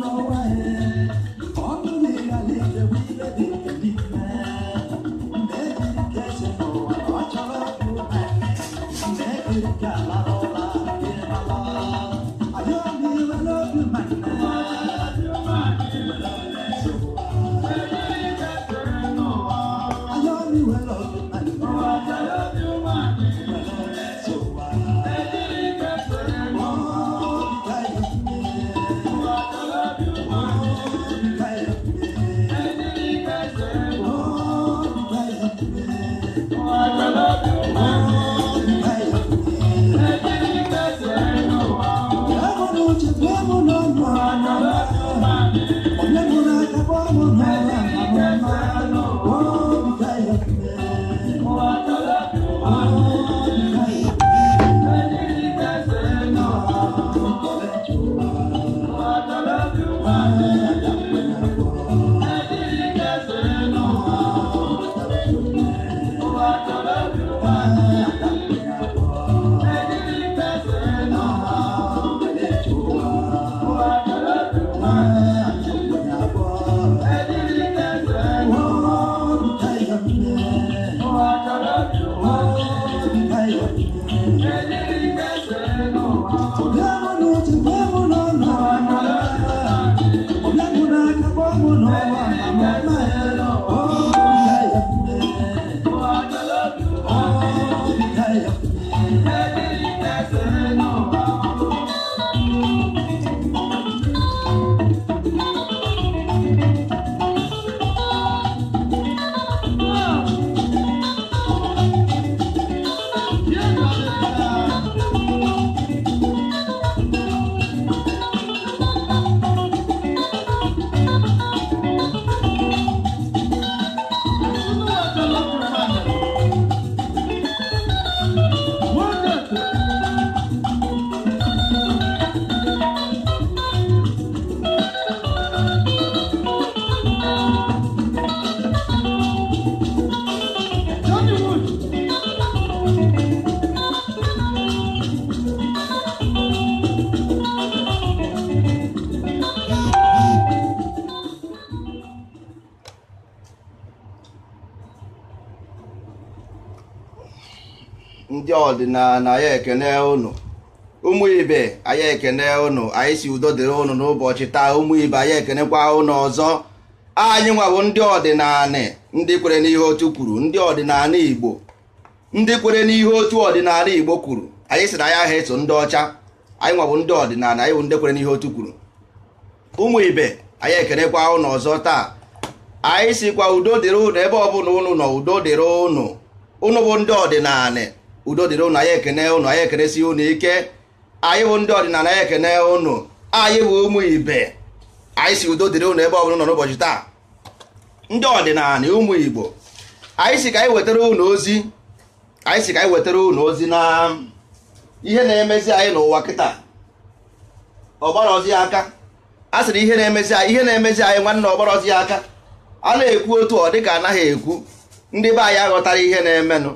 know na na ya ekene unu ụmụ ibe anyị ekene unu anyị si udo dịrị ụnụ n'ụbọchị taa ụmụ ibe anyị ekenekwa ụnụ ọzọ anyị nwawo ndị ọdịnala ndị kwere n'ihe otu kwuru ndị ọdịnala igbo ndị kwere n'ihe otu ọdịnala kwuru anyị sị eso ọcha anyị nwawo ndị ọdịnala anyị bụ taa anyị sikwa udo dịrị ụnụ ebe ọbụla unu nọ udo dịrị ụnụ ụnụ bụ ndị ọdịnala udo dịrị ụnụ anyị ekene ụnụ anyị ekenesi ụnụ ike anyị bụ ndị ọdịnala anyị ekene ụnụ anyị bụ ụmụ ibe anyị si udo dịrị ụnụ ebe ọ bụla nọ n'ụbọchị taa ndị ọdịnala ụmụ igbo anyị si ka anyị wetara ụnụ ozi anyị si ka anyị wetara ụnụ ozi na ihe na-emezi anyị n'ụwa kịta ọgbara ozi aka a sịrị ihe na-emezi anyị ihe na-emezi anyị nwanne ọgbara ozi aka a na-ekwu otu ọ dịka anaghị ekwu ndị be anyị aghọtara ihe na-emenụ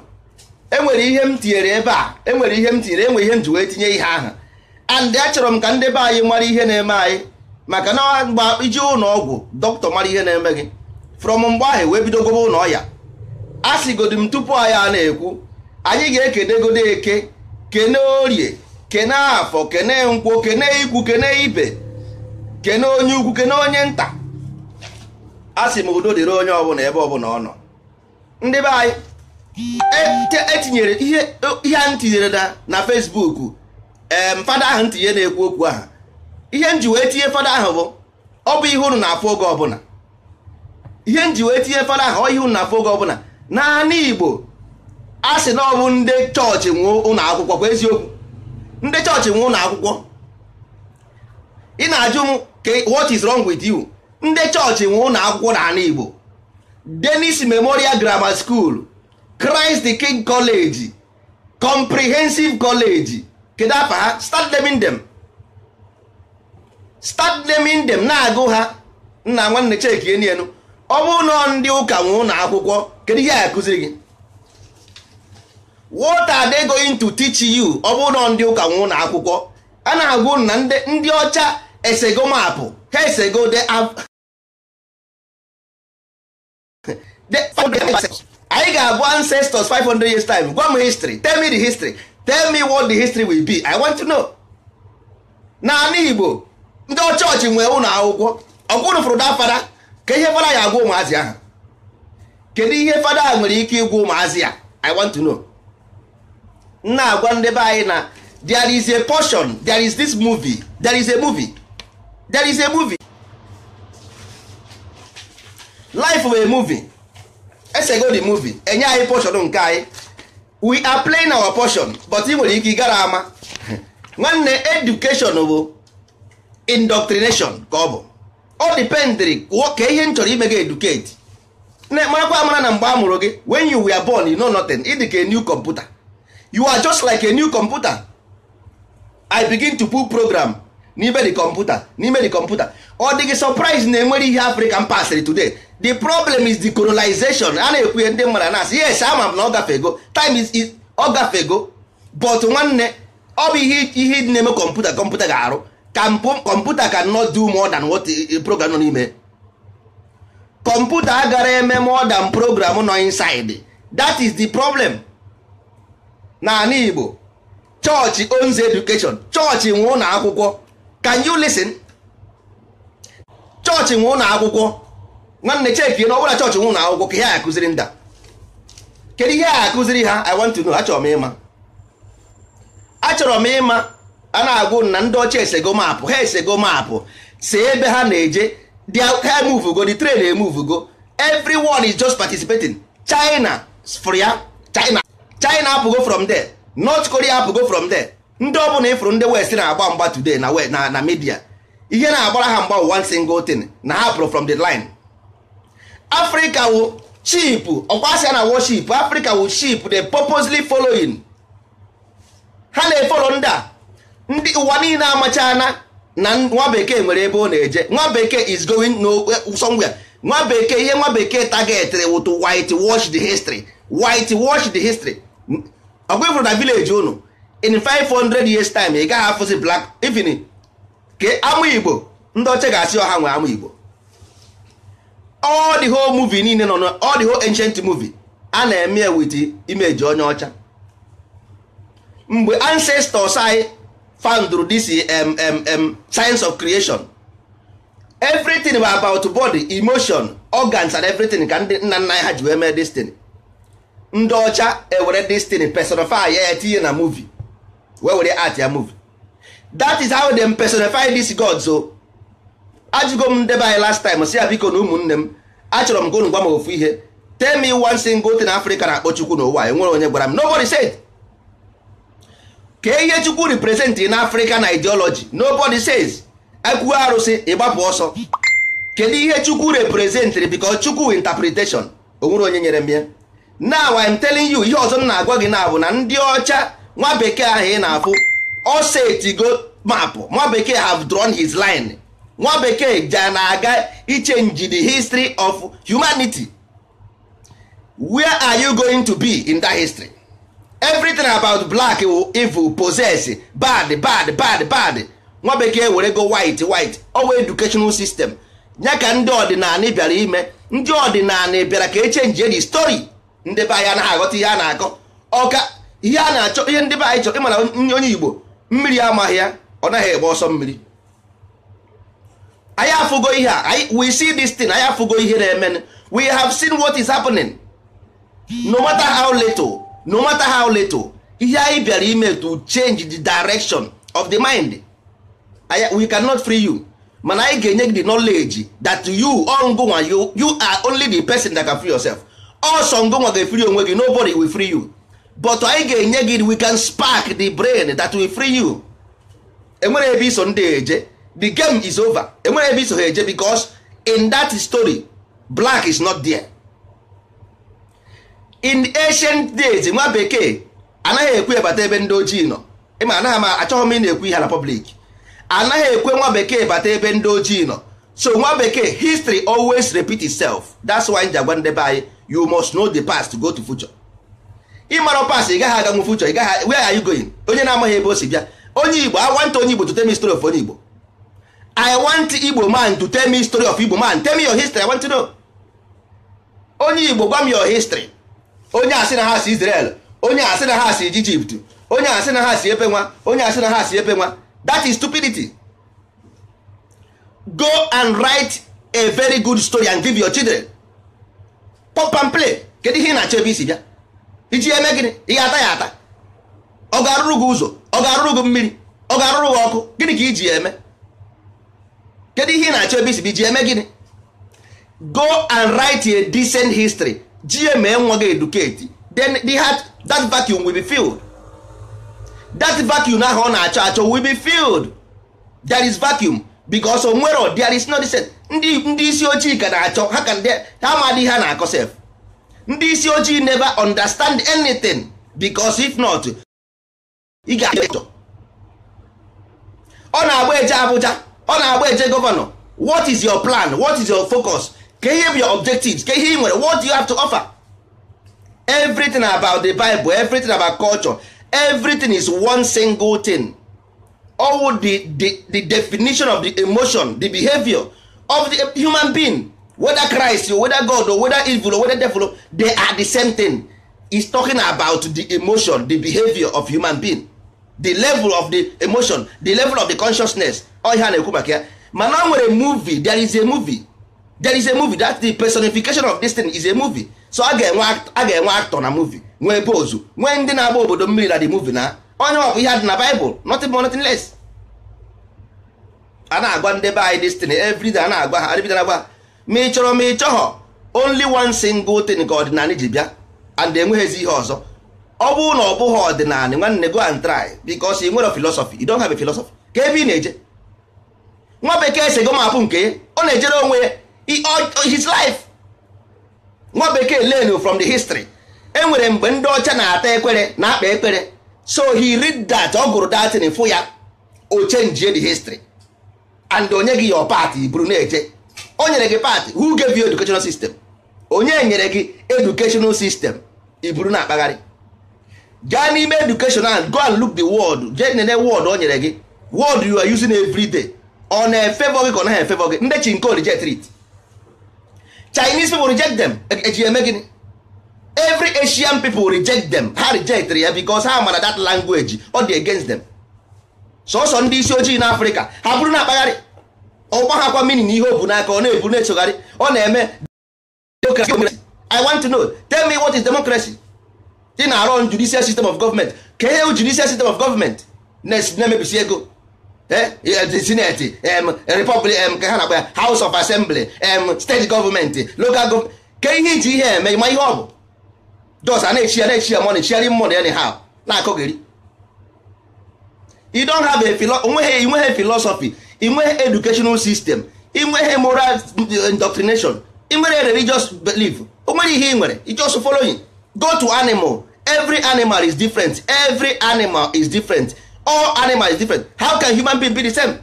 enwere ihe m tinyere ebe a enwere ihe m tinyere enwere ihe m ji wee tinye ihe ahụ and achọrọ e m ka ndị be anyị mara ihe na-eme anyị maka na mgbe iji ụlọ ọgwụ dọkịta mara ihe na-eme gị frọm mgbe ahụ e wee bidogobe ụlọ ọya a sịgodi m tupu anyị a na-ekwu anyị ga-ekenegodo eke kene orie kene afọ kene nkwụ kene ikwu kene ibe kene onye ukwu kene onye nta a sị m udo dịrị onye ọbụla ebe ọbụla ọ nọ ndị be anyị etinyere e ihe a ntinyere na Fesbuk em fada ahụ ntinye na-ekwu okwu aha ihe nji wee tinye fada ahụ bụ ọ bụ ihe unu na-afụ oge ọbụla ihe nji wee tinye fada ahụ ihe unu na-afụ oge ọbụla naanị Igbo a sị na ọ bụ ndị chọọchị nwụọ ụlọ akwụkwọ kwa eziokwu ndị chọọchị nwụọ ụlọ akwụkwọ ị na-ajụ m what is wrong with you ndị chọọchị nwụọ ụlọ akwụkwọ na Igbo Dennis Memorial Grammar School Christ the King College Comprehensive College kedu afa ha start dem. them start them na-agụ ha nna nwanne cheki enu enu ọ bụrụ na ndị ụka nwe ụlọ akwụkwọ kedu ihe a kụziri gị what are they going to teach you ọ bụrụ ndị ụka nwe ụlọ akwụkwọ a na-agụ na ndị ọcha esego mapụ ha esego de anyị ga-abụ ancestors 500 years time gwa m history tell me the history tell me what the history will be i want to know naanị igbo ndị ọchọọchị nwee ụlọ akwụkwọ ọgwụrụ fụrụ fada ka ihe fada ya agwa ụmụazị ahụ kedu ihe fada a nwere ike ịgwa ụmụazị ya i want to know na-agwa ndị be anyị na there is a portion there is this movie there is a movie there is a movie life of a movie esego the movie enye anyị portion nke anyị we are playing our portion but ị nwere ike gara ama nwanne education bụ indoctrination ka ọ bụ ọ dependri ka ihe m chọrọ ime gị educate marakwa amara na mgbe a mụrụ gị wen you were born you know nothing ị a new computer you are just like a new computer i begin to put program n'ime the computer n'ime the computer ọ dịghị surprise na enwere ihe africa m pasịrị today the problem is the colonization a na-ekwu ndị mmadụ na-asị yes ama m na ọ gafego time is ọ gafego but nwanne ọ bụ ihe ihe na-eme kọmputa kọmputa ga-arụ kọmputa can not do more than what program nọ n'ime kọmputa agara eme more than program nọ inside that is the problem n'ala Igbo chọọchị owns education chọọchị nwe ụlọ akwụkwọ can you listen chọọchị nwe ụlọ akwụkwọ nwanne cheki na ọbụla chọọchị nwụ na akwụkwọ ka ihe a akụziri nda kedu ihe a kụziri ha i want to know achọrọ m ịma achọrọ m ịma a na-agwụ na ndị ọcha esego maapụ ha esego maapụ si ebe ha na-eje ha emuvugo the train emuvugo everyone is just participating china for ya china china apụgo from there north korea apụgo from there ndị ọbụla ịfụrụ ndị west na-agba mgba today na na media ihe na-agbara ha mgba one single thing na ha pụrụ from the line africa wụ sheep ọkwasịa na worship africa wụ sheep the purposely following ha na-efolo ndị a ndị ụwa niile amachana na nwa bekee nwere ebe ọ na-eje nwa bekee is going eh, somewhere nwa bekee ihe nwa bekee targetịrị wụ to white wash the history white wash history ọgwa ifuru na village unu in 500 years time ị gaghị afụzi black even ka amụ igbo ndị ọcha ga-asị ọha nwe amụ igbo all the whole movie niile nọ na all the whole ancient movie a na-eme with image onye ọcha mgbe ancestors anyị found this um, um, um, science of creation everything bụ about body emotion organs and everything ka ndị nna nna ha ji wee mee destiny ndị ọcha ewere destiny personify ya na movie wee were art ya movie that is how they personify these gods so ajụgo m ndebe anyị last time si ya biko na ụmụnne m achọrọ m gonu gwa m ofu ihe tem me one single thing Africa na-akpọ Chukwu n'ụwa enwere onye gwara m nobody said ka ihe Chukwu represent na Africa na ideology nobody says akwụghị e arụsị ịgbapụ ọsọ kedu ihe Chukwu representịrị because Chukwu interpretation onwere onye nyere m ya now I'm telling you ihe ọzọ m na-agwa gị na bụ na ndị ọcha nwa bekee ahụ ị na-afụ ọ setigo mapụ nwa bekee have drawn his line nwa bekee ja na-aga ichenji the history of humanity where are you going to be in that history everything about black evil possess bad bad bad bad nwa bekee were go white white owa educational system ya ka ndị ọdịnala bịara ime ndị ọdịnala bịara ka echenjie the story ndị be anyị anaghị aghọta ihe a na-akọ ọka ihe a na-achọ ihe ndị be anyị chọrọ ịmara onye igbo mmiri amaghị ya ọ naghị egbe ọsọ mmiri anyị afụgo ihe a we see this thing anyị afụgo ihe na-eme we have seen what is happening no matter how little no matter how little ihe anyị bịara ime to change the direction of the mind we cannot free you mana anyị ga-enye gị the knowledge that you ongunwa you you are only the person that can free yourself also ngonwa ga free onwe gị nobody will free you but anyị ga-enye gị we can spark the brain that will free you enwere ebe iso ndị eje the game is over enwere ebe iso ha eje because in that story black is not there in ancient days nwa bekee anaghị ekwe bata ebe ndị ojii nọ ịma anaghị m achọghị m ị na-ekwu ihe na public anaghị ekwe nwa bekee bata ebe ndị ojii nọ so nwa bekee history always repeat itself that's why ji agwa ndebe anyị you must know the past go to future ịmara past ị gaghị aganwu future ị gaghị where are you going onye na-amaghị ebe o si bịa onye igbo I wanta onye igbo to tell me story of onye igbo i want igbo man to tell me story of igbo man tell me your history i want to know onye igbo gwa m your history onye asị na ha si israel onye asị na ha si egypt onye asị na ha si ebe nwa onye asị na ha si ebe nwa that is stupidity go and write a very good story and give your children pop and play kedu ihe ị na-achọ ebe isi bịa iji eme gịnị ihe ata ya ata ọ ga-arụrụ gị ụzọ ọ ga-arụrụ gị mmiri ọ ga-arụrụ gị ọkụ gịnị ka iji eme kedu ihe ị na-achọ ebe isibi ji eme gịnị go and write a decent history gma nwa gị educate then the heart, that vacuum will be filled that vacuum ahụ ọ na-achọ achọ will be filled there is vacuum because onwere there is no decent ndị ndị isi ojii ka na-achọ ha ka ha amadị ha na-akọ sef ndị isi ojii never understand anything because if not ị ga-achọ ọ na-agba eje abụja. ọ na-agba eje gọvanọ what is your plan what is your focus K'e ihe bụ your objectives K'e ihe ị nwere what do you have to offer everything about the bible everything about culture everything is one single thing all the, the, the definition of the emotion the behavior of the human being whether christ or whether god or whether evil or whether devil they are the same thing is talking about the emotion the behavior of human being the level of the emotion the level of the consciousness ọ ihe na-ekwu maka ya mana o nwere movie there is a movie there is a movie that the personification of this is a movie so a ga-enwe actor na movie nwee pose nwee ndị na-agba obodo mmiri na the movie na onye ọ bụ ihe dị na Bible nothing more nothing less a na-agwa ndị be anyị this thing day a na-agwa ha adịbida agwa ha ma ị chọrọ ma ị chọghọ only one single thing ka ọdịnala ji bịa and enweghịzi ihe ọzọ ọ bụrụ na ọ bụghị ọdịnala nwanne go and try because ị nwere philosophy you don't ka ebe ị na-eje nwa bekee si gomapụ nke ọ na-ejere onwe ya his life nwa bekee learn from the history e nwere mgbe ndị ọcha na-ata ekpere na-akpa ekpere so he read that ọ gụrụ datin fụ ya o change the history and onye gị your part buru na-eje o nyere gị part who gave you educational system onye nyere gị educational system i buru na-akpagharị gaa n'ime education and go and look the word get nene word o nyere gị word you are using every day ọ na-efevọ gị ka ọ naghị efevọ gị ndị chinko reject it chinese people reject them eji e eme gịnị every asian people reject them ha reject ya because ha mara that language ọ dị against them sọsọ ndị isi ojii na afrịka ha bụrụ na akpagharị ọgba mini na ihe o n'aka ọ na-ebu na-echogharị ọ na-eme i want to know tell me what is democracy ị na-arụ judicial system of government ka ihe judicial system of government na-emebisi ego e, e, e, senate republic ka ha na-akpa house of assembly state government local gọọmenti ka ihe iji ihe eme ma ihe ọ bụ dos a na-echi ya na-echi ya money chiari money anyhow na-akọgeri you don't have a onweghị inweghị philosophy inweghị educational system inweghị moral mm, indoctrination inwere religious belief o nwere ihe ị nwere i just following go to animal every animal is different every animal is different all animal is different how can human being be the same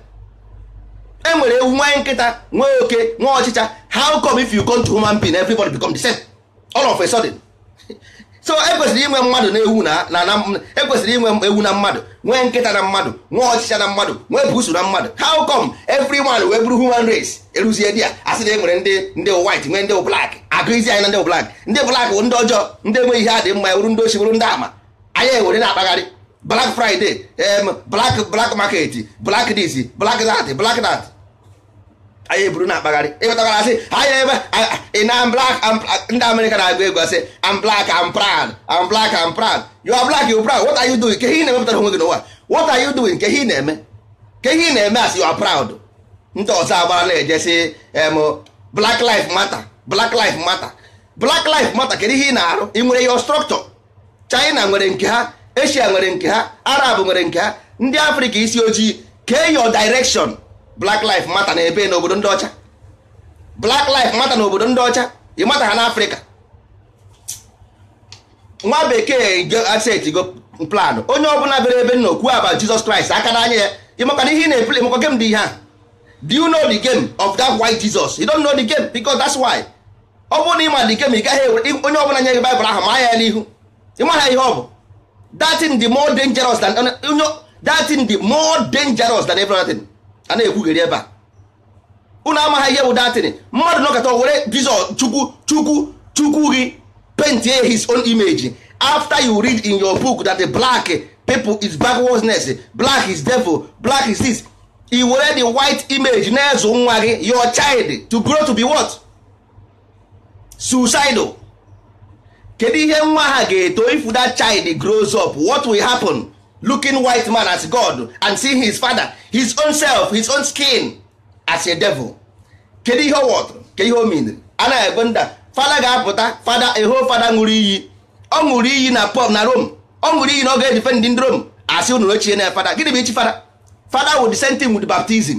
e nwere ewu nwanyị nkịta nwee oke nwee ọchịcha how come if you go to human being everybody become the same all of a sudden so ekwesịrị inwe mmadụ na ewu na ekwesịrị inwe ewu na mmadụ nwee nkịta na mmadụ nwee ọchịcha na mmadụ nwee busu na mmadụ how come everyone wee bụrụ human race eruzie di a asị na e nwere ndị ndị white nwee ndị blak agụizi anyị na ndị blak ndị blak bụ ndị ọjọọ ndị enweghị ihe adị mma bụrụ ndị ochi bụrụ ndị ama anya ewere na-akpagharị black friday black black market black this black dat black dat anyị eburu na-akpagharị ịghọtagara asị anyị ebe ina black ndị amerịka na-agụ egwu asị am black am proud am black am proud you are black you proud what are you doing ke ihe ị na-emepụtara onwe gị n'ụwa what are you doing ke ihe ị na-eme ke ihe ị na-eme asị you are proud ndị ọzọ agbara na-eje sị em black life matter black life matter black life matter kedu ihe ị na-arụ ị nwere your structure china nwere nke ha asia nwere nke ha arab nwere nke ha ndị afrịka isi ojii kee your direction black life mata na ebe n'obodo ndị ọcha black life mata na obodo ndị ọcha ịmata ha n'afrịka nwa bekee go plan onye ọbụla bere ebe nna okwu aba jizọs kraịst aka n'anya ya ịmakana ihe ị na-epl ịmakwa game dị ihe a do you know the game of that white jesus you don't know the game because that's why ọ bụrụ na ịma the game ị gaghị onye ọbụla nye gị baịbụl ahụ ma ya n'ihu ịmaha ihe ọ bụ that thing dị more dangerous than that thing dị more dangerous than everything a na-ekwugheri ebe a unu amaghị ihe bụ datịn mmadụ nọkọta were jizọ chukwu chukwu chukwu gị his own image after you read in your book that the black people is backwardness black is devil black is this i were the white image na-ezụ nwa gị your child to grow to be what suicidal kedu ihe nwa ha ga-eto if that child grows up what will happen looking white man as god and seeing his father his own self his own skin as a devil kedu ihe ọ wọtụrụ ke ihe o mere anaghị ebe nda fada ga-apụta fada eho fada ṅụrụ iyi ọ ṅụrụ iyi na pub na rom ọ ṅụrụ iyi na ọ ga-edife ndị ndị rom asị unu ochie na fada gịnị bụ ichi fada fada wụ the same thing with baptism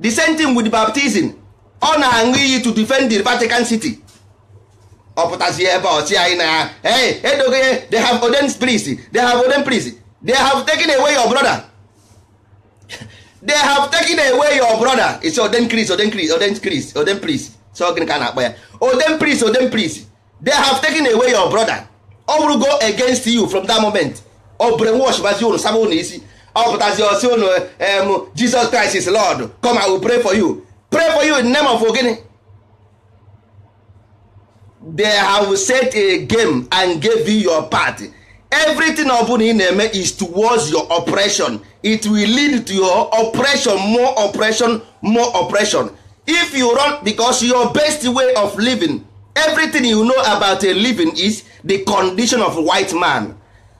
the same thing with baptism ọ na-aṅụ iyi to defend the Vatican City ọ pụtazie ebe ọchị anyị na ya edogo ihe they have ordained priests they have ordained priests they have taken away your brother they have taken away your brother it's oden chris oden chris oden chris oden priest so gịnị ka a na-akpọ ya oden please oden priest they have taken away your brother ọ go against you from that moment o brainwash as unu saba unu isi ọ pụtazi osi unu em jesus christ is lord come i will pray for you pray for you in the name of ogini they have set a game and gave you your part everything ọbụla ị na-eme is towards your oppression it will lead to your oppression more oppression more oppression if you run because your best way of living everything you know about a living is the condition of white man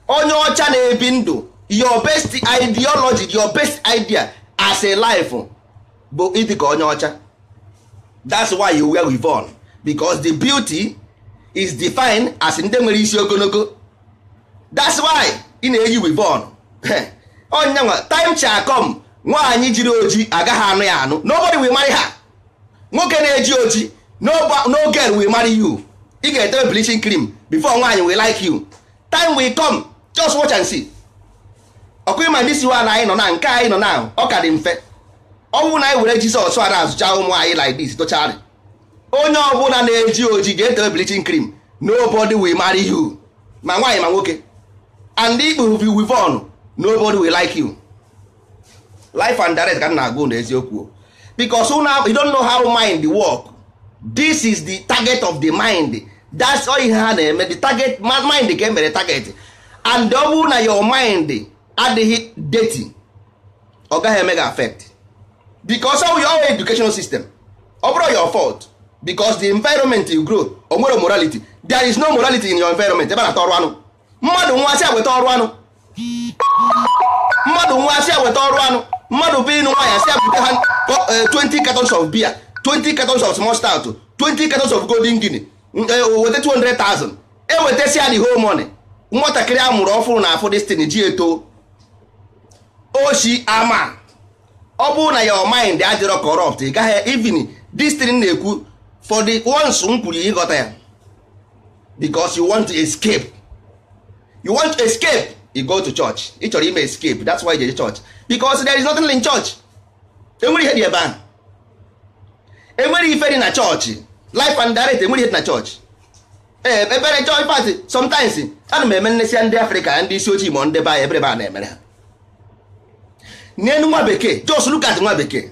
onye ọcha na-ebi ndụ your best ideology your best idea as a life bụ ịdịka onye ọcha that's why you wear with on because the beauty is defined as ndị nwere isi ogologo that's why ị na-eyi wivon onya nwa time cha come nwaanyị jiri oji agaghị anụ ya anụ nobody will marry ha nwoke na-eji oji no girl will marry you ị ga-edebe bleaching cream before nwaanyị will like you time will come just watch and see ọkụ ịma ndị si wa na anyị nọ na nke anyị nọ na ọ ka dị mfe ọnwụ na anyị were jizọs a na-azụcha ụmụ anyị like this tochari onye ọbụla na-eji oji ga-edebe bleaching cream nobody will marry you ma nwaanyị ma nwoke and ikpuru bi with on nobody will like you life and direct ka na agụ na eziokwu because una you don't know how mind work this is the target of the mind that's all ihe ha na-eme the target mind ka emere target and ọ bụrụ na your mind adịghị dirty ọ gaghị eme gị affect because of your educational system ọ bụrụ your fault because the environment you grow ogboro morality there is no morality in your environment ebe na-ata ọrụ anụ mmadụ nwa asị agweta ọrụ anụ mmadụ nwa asị agweta ọrụ anụ mmadụ bụ nwa nwaanyị asị abụta ha 20 e, cartons of beer 20 cartons of small 20 cartons of golden guinea e, weta 200,000 ewetasi ya na whole money nwatakịrị a mụrụ ọfụrụ na afọ destiny ji eto oshi ama ọ bụrụ na your mind adịrọ corrupt ị gaghị even destiny na-ekwu for the ones m kwuru ịghọta ya because you want to escape you want to escape you go to church ị chọrọ ime escape that's why you dey church because there is nothing in church enwere ihe dị ebe ahụ enwere ife dị na church, life and direct enwere ihe dị na church. ee ebere chọọchị pati sometimes ana m eme nnesịa ndị afrịka ndị isi ojii ma ndị eh, be anyị ebere na-emere ha n'elu nwa bekee jos Lukas nwa bekee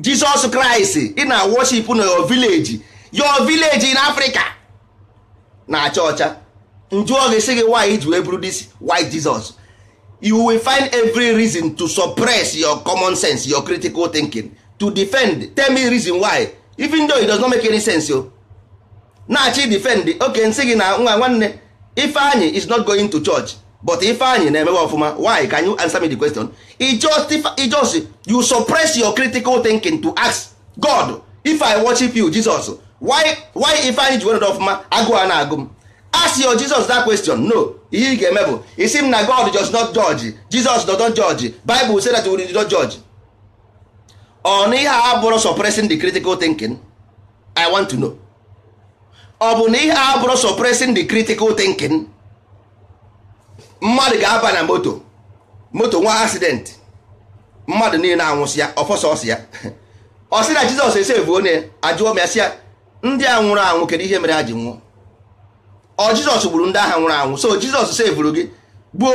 jizọs kraịst ị na-worship na your village your village in africa na-acha ọcha ah. njụọ gị sị gị why ji wee bụrụ this why Jesus you will find every reason to suppress your common sense your critical thinking to defend tell me reason why even though it does not make any sense o na-achị defend oke nsị gị na nwa nwanne Ifeanyị is not going to church but Ifeanyị na-emewe ọfụma why can you answer me the question it just, you suppress your critical thinking to ask God if I worship you Jesus why why Ifeanyị ji were ọfụma agụụ a na-agụ m asị yo jizọs dat question no ihe ị ga-eme bụ isi m na god just not judge jesus does don judge bible say that we do judge ọ na ihe a bụrụ suppressing the critical thinking i want to know ọ bụ na ihe a bụrụ suppressing the critical thinking mmadụ ga-aba na moto moto nwa accident mmadụ niile anwụsị ya ọfọsọsị ya ọ sị na jizọs esevu onye ajụọ m ya sị ya ndị a nwụrụ anwụ kedu ihe mere ha ji nwụọ ọ jizọs gburu ndị agha nwụrụ anwụ so jizọs sevuru gị gbuo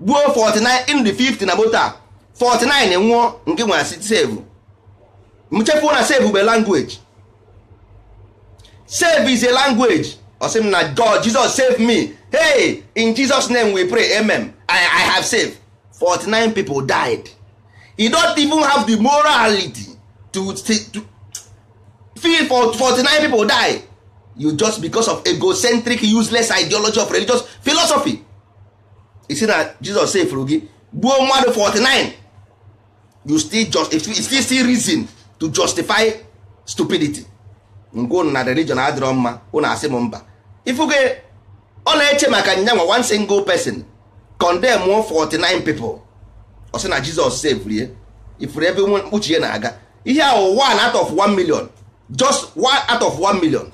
gbuo 49 in the 50 na bota a 49 nwụọ nke nwere asị sevu mchefuo na sevu be language save is a language ọsị m na god jesus save me hey in jesus name we pray amen i, I have saved 49 people died e don't even have the morality to, to, to feel for 49 people die you just because of egocentric useless ideology of religious philosophy see na Jesus sefuru gi gbuo mmadụ 49 you still just if you still see reason to justify stupidity ngwa unu na religion adịrọ mma unu asị m mba ifuge ọ na-eche maka nyanwa one single person condemn 49 people ọ sị na Jesus sefuru ya ifuru ebe mkpuchi ya na-aga ihe ahụ one out of one million just one out of one million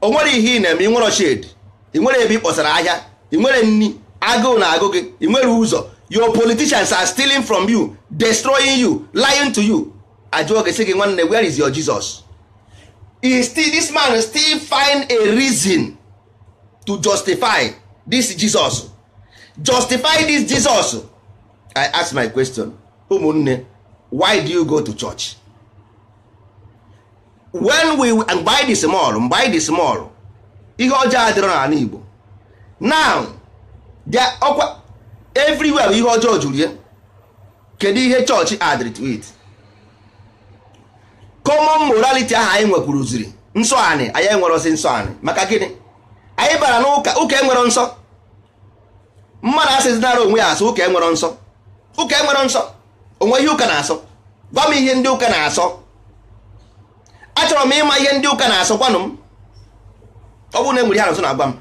o nwere ihe ị na-eme ị nwere ọchịd ị nwere ebe ị kpọsara ahịa ị nwere nni agụụ na agụ gị ị nwere ụzọ your politicians are stealing from you destroying you lying to you ajụọ gị sị gị nwanne where is your Jesus Is still this man still find a reason to justify this Jesus justify this Jesus I ask my question ụmụnne why do you go to church when we mgbe anyị dị small mgbe anyị small ihe ọjọọ adịrọ n'ala Igbo now ọkwa everywhere ihe ọjọọ juru ya kedu ihe chọọchị adrit wit common morality ahụ anyị nwekwuru ziri nsọ anyị anyị enwerosi nsọ anyị maka gịnị anyị bara n'ụka ụka enwero nsọ mmadụ asịzinara onwe ya asụ ụka enwero nsọ ụka enwero nsọ onwe ihe ụka na-asọ gwa m ihe ndị ụka na-asọ achọrọ m ịma ihe ndị ụka na-asọkwanụ m ọ bụrụ na enwere ihe na na-agwa m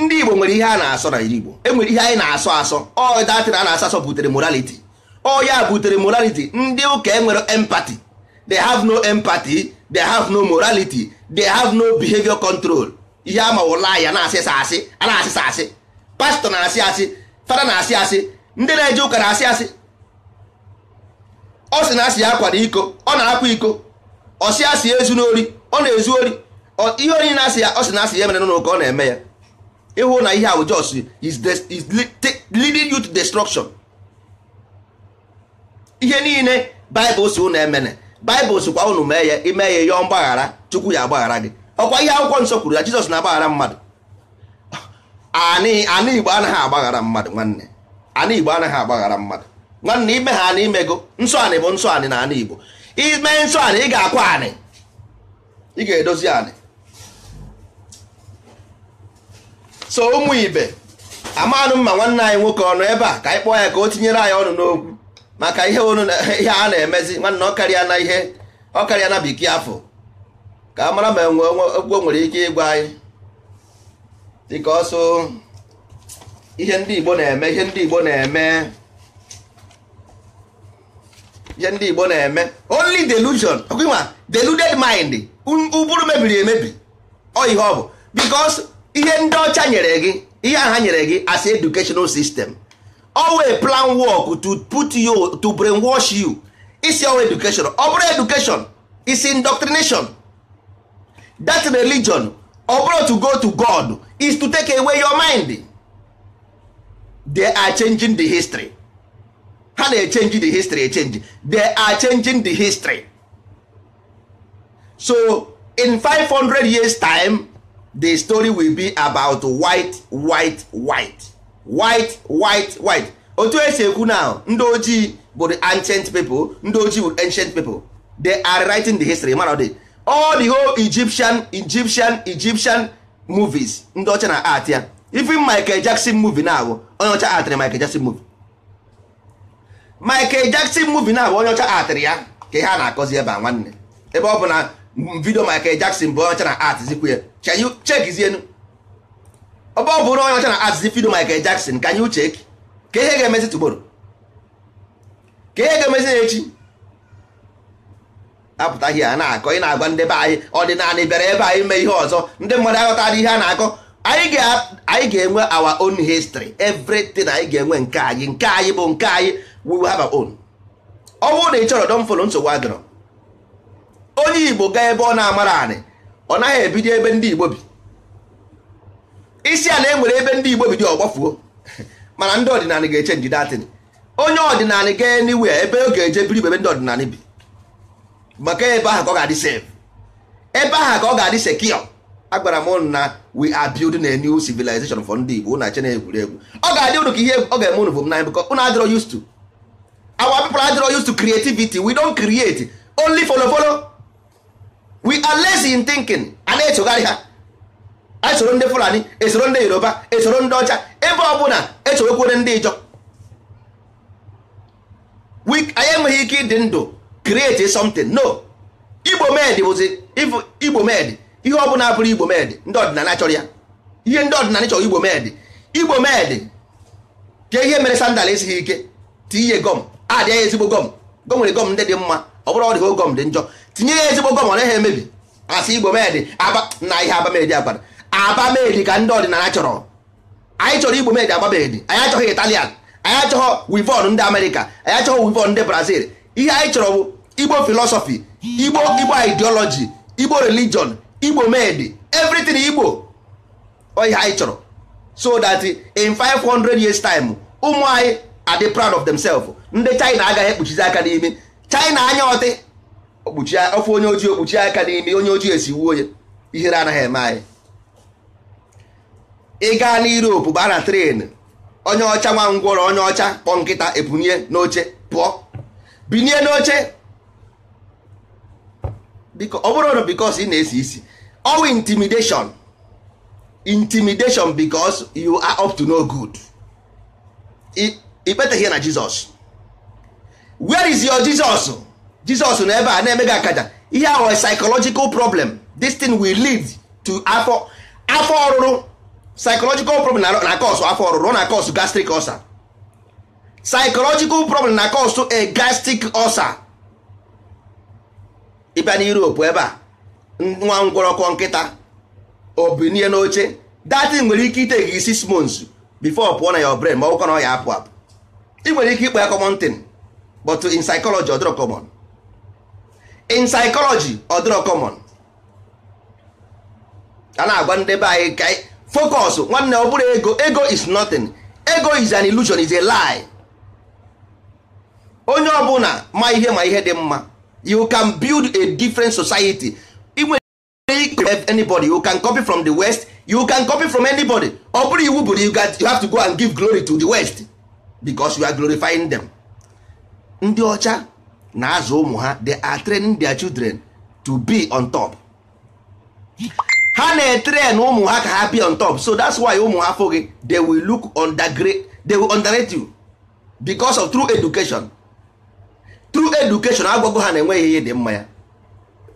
ndị igbo nwere ihe a na-asọ na iri igbo enwere ihe anyị na-asọ asọ ọ datịrị a na-asọ asọ butere moraliti ọ ya butere morality ndị ụka enwere empati they have no empati they have no morality they have no behavior control ihe a mawụla ya na-asịsa asị a na-asịsa asị pastọ na-asị asị fada na-asị asị ndị na-eje ụka na-asị asị ọ sị na asị ya akwa na iko ọ na-akwa iko ọsị asị ezu n'ori ọ na-ezu ori ihe onye na-asị ya ọ sị na asị ya emere n'ụlọ ọ na-eme ya ịhụ na ihe ahụ jos is leading you to destruction ihe niile baịbụl si ụnụ emene baịbụl sikwa ụnụ mee ya ime ya yọọ mgbaghara chukwu ya agbaghara gị ọkwa ihe akwụkwọ nsọ kwuru ya jizọs na-agbaghara mmadụ anị igbo anaghị agbaghara mmadụ nwanne anị igbo anaghị agbaghara mmadụ nwanne ime ha na imego nsọ anị bụ nsọ anị na anị igbo ime nsọ anị ị ga-akwa anị ị ga-edozi anị so ụmụ ibe amanụ mma nwanne anyị nwoke ọnụ ebe a ka anyị kpọọ ya ka o tinyere anyị ọnụ n'okwu maka ihe ihe a na-emezi nwanne ọ karịa na ihe ọ karịa na bekee afọ ka a mara ma okwu nwere ike ịgwa anyị dịka ọsọ ihe ndị Igbo na-eme ihe ndị Igbo na-eme ihe ndị Igbo na-eme only delusion ma deluded mind ụbụrụ mebiri emebi ọ ihe ọ bụ because ihe ndị ọcha nyere gị ihe aha nyere gị as educational system always plan work to put you to brainwash you isi ọwa education ọ bụrụ education isi indoctrination that religion ọ bụrụ to go to God is to take away your mind they are changing the history ha na-echenji the history echenji they are changing the history so in 500 years time the story will be about white white white white white white otu esi ekwu now ndị ojii bụ the ancient people ndị ojii bụ ancient people they are writing the history man the all the whole Egyptian Egyptian Egyptian movies ndị ọcha na art ya even Michael Jackson movie na-abụ onye ọcha art Michael Jackson movie Michael Jackson movie na abụ onye ọcha atịrị ya ka ihe a na-akọzi ebe a nwanne ebe ọ bụ na vidio Michael Jackson bụ onye ọcha na art zikwu ya chekizienu ọba ọ bụrụ onye ọcha na art zi vidio Michael Jackson ka you check ka ihe ga-emezi tụgboro ka ihe ga-emezi echi apụta ihe a na-akọ ị na-agwa ndị be anyị ọdịnala bịara ebe anyị mee ihe ọzọ ndị mmadụ aghọtara ihe a na-akọ anyị ga-enwe our own history everything anyị ga-enwe nke anyị nke anyị bụ nke anyị we will have our own ọ bụrụ na ị chọrọ don nsogbu adịrọ onye igbo gaa ebe ọ na-amara anị ọ naghị ebido ebe ndị igbo bi isi ala e nwere ebe ndị igbo bi dị ọgbafuo mana ndị ọdịnala ga-eche njide atịn onye ọdịnala gaa anywhere ebe ọ ga-eje biri ebe ndị ọdịnala bi maka ebe ahụ ka ọ ga-adị sef ebe ahụ ka ọ ga-adị sekio agwara m na we are building a new civilization for ndị igbo na-eche na egwuregwu ọ ga-adị ụnụ ka ihe ọ ga-eme ụnụ bụ m na bụkọ ụnụ adịrọ used to our people adịrọ used to creativity we don create only follow follow we are lazy in thinking a na-echogharị ha esoro ndị fulani esoro ndị yoruba esoro ndị ọcha ebe ọbụla echoghekwere ndị ijọ anyị enweghị ike ịdị ndụ create something no igbo med bụzi igbo med ihe ọbụla bụrụ igbo med ndị ọdịnala chọrọ ya ihe ndị ọdịnala chọrọ igbo med igbo med ka ihe mere sandal esighị ike tinye gọm adị ya ezigbo gọm gọm nwere gọm ndị dị mma ọ bụrụ ọdịgo gọm dị njọ tinye ya ezigbo gọm ọ naghị emebi asị igbo medị aba na ihe abamedi agbada abamedi ka ndị ọdịnala chọrọ anyị chọrọ igbo medị abamedi anyị achọghị italian anyị achọghọ wivon ndị amerịka anyị achọghọ wivon ndị brazil ihe anyị chọrọ bụ igbo filosọfi igbo igbo ideology igbo relijion igbo medị everything igbo ọ ihe anyị chọrọ so that in 500 years time ụmụ anyị adị proud of themselves ndị China agaghị ekpuchizi aka n'imi China anya ọtị okpuchi ofe onye ojii okpuchi aka n'imi onye ojii esi wuo onye ihere anaghị eme anyị ị gaa na Europe baa na tren onye ọcha nwa ngwọrọ onye ọcha kpọọ nkịta ebunye n'oche pụọ binie n'oche ọ bụrụ na because ị na-esi isi ọwụ intimidation intimidation because you are up to no good ikpeteghị ya na jizọs where is your jizọs jizọs na ebe a na-eme gị akaja ihe ahụ psychological problem destin thing will lead to afọ afọ ọrụrụ psychological problem na cause afọ ọrụrụ na cause gastric ulcer psychological problem na cause a gastric ulcer ịbịa na Europe ebe a nwa ngwọrọkọ nkịta obinie n'oche datin nwere ike ite gị six months before pụọ na ya brain ma ọkụkọ na ọ ya apụ apụ ị nwere ike ịkpa ya common thing but in psychology ọ dịrọ common in psychology ọ dịrọ common a na-agwa ndị be anyị ka focus nwanne ọ bụrụ ego ego is nothing ego is an illusion is a lie onye ọbụla ma ihe ma ihe dị mma you can build a different society anybody you can copy from the west you can copy from anybody ọ bụrụ iwu bụrụ you have to go and give glory to the west because we are glorifying them ndị ọcha na-azụ ụmụ ha they are training their children to be on top ha na-etrain ụmụ ha ka ha be on top so that's why ụmụ ha fụghị they will look undergrade they will underrate you because of true education true education agwago ha na-enweghị ihe dị mma ya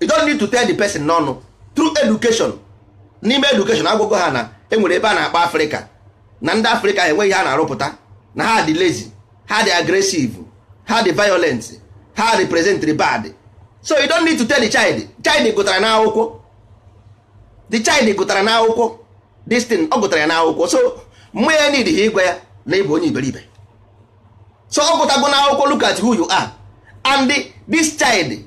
you don't need to tell the person n'ọnụ true education n'ime education agwago ha na enwere ebe a na akpa africa na ndị africa enweghị a na-arụpụta na ha dị lazy ha dị aggressive ha dị violent ha represent bad so you don't need to tell the child child gụtara n'akwụkwọ the child gụtara n'akwụkwọ this thing ọ gụtara ya n'akwụkwọ so mụ ya need ha ịgwa ya na ịbụ onye iberibe so ọ gụtago n'akwụkwọ look at who you are and this child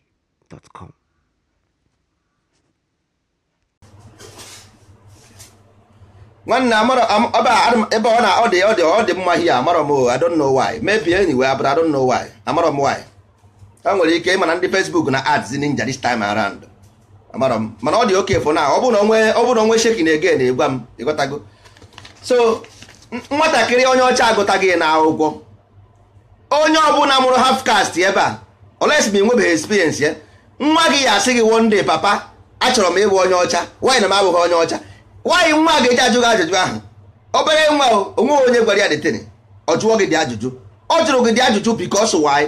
gmail.com nwanne ebe ọ na ọ dị ọ dị mma ihe amarọ m ọ dị know why ọ dị mma amarọ m why ọ nwere ike ịma na ndị Facebook na ads dị this time around amarọ m mana ọ dị oke fọ na ọ bụrụ onwe ọ shekin ege na-egwa m ịghọtago so nwatakịrị onye ọcha agụtaghị na akwụkwọ onye ọbụla mụrụ half caste ebe a olesi nwebeghị experience ya nwa gị ya asị gị one papa achọrọ m ịbụ onye ọcha nwaanyị na m abụghị onye ọcha nwaanyị nwa ga-eji ajụ ajụjụ ahụ obere nwa onwe onye gwara ya detene ọ jụọ gị dị ajụjụ ọ jụrụ gị dị ajụjụ because why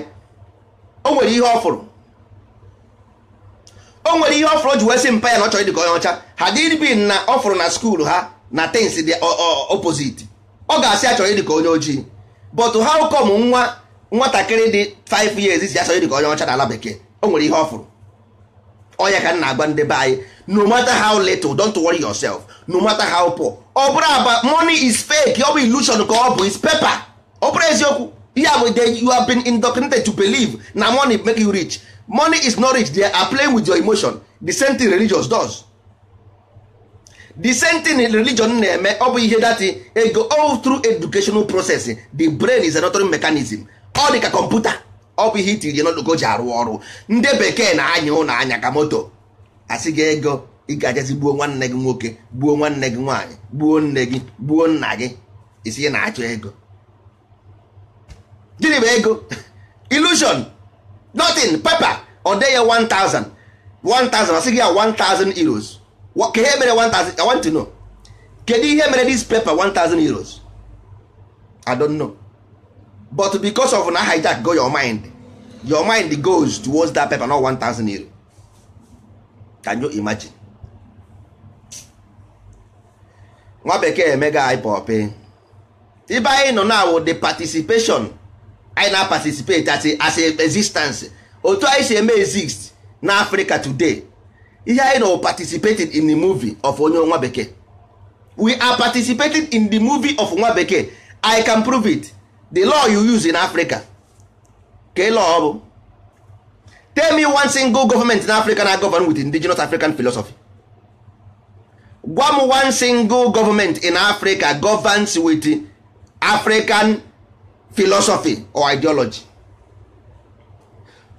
o nwere ihe ọ fụrụ o nwere ihe ọ fụrụ ji wee mpa ya na ọ chọrọ ịdị ka onye ọcha ha dịrịbin na ọ fụrụ na skuul ha na tens dị opposite ọ ga-asị achọrọ ịdị ka onye ojii but how come nwa nwatakịrị dị 5 years si achọrọ ịdị ka onye ọcha ala bekee o nwere ihe ọ fụrụ ọya ka m na-agwa ndị be anyị no matter how little don't worry yourself no matter how poor ọ bụrụ aba money is fake ọ bụ illusion ka ọ bụ is paper ọ bụrụ eziokwu ihe bụ you have been indoctrinated to believe na money make you rich money is not rich they are playing with your emotion the same thing religious does the same thing religion na-eme ọ bụ ihe dati ego all through educational process the brain is another mechanism ọ dị ka computer. ọ bụ ihe itiri je n'oloko ji arụ ọrụ ndị bekee na-anya ụlọ anya ka moto asị gị ego ị ga-ajazi gbuo nwanne gị nwoke gbuo nwanne gị nwaanyị gbuo nne gị gbuo nna gị isi na-achọ ego gịnị bụ ego illusion nothing papa ọ dee ya 1000 1000 asị gị ya 1000 euros ka ihe mere 1000 I want to know kedu ihe mere this paper 1000 euros I don't know but because of na hijack go your mind your mind goes towards that paper not thousand euro can you imagine nwa bekee emega ipop ibe anyị nọ na wo the participation anyị na participate as a, as a existence otu anyị si eme exist na Africa today ihe anyị nọ participated in the movie of onye nwa bekee we are participating in the movie of nwa bekee I can prove it the law you use in africa ka law ọ bụ tell me one single government in africa na govern with indigenous african philosophy gwa m one single government in africa governs with african philosophy or ideology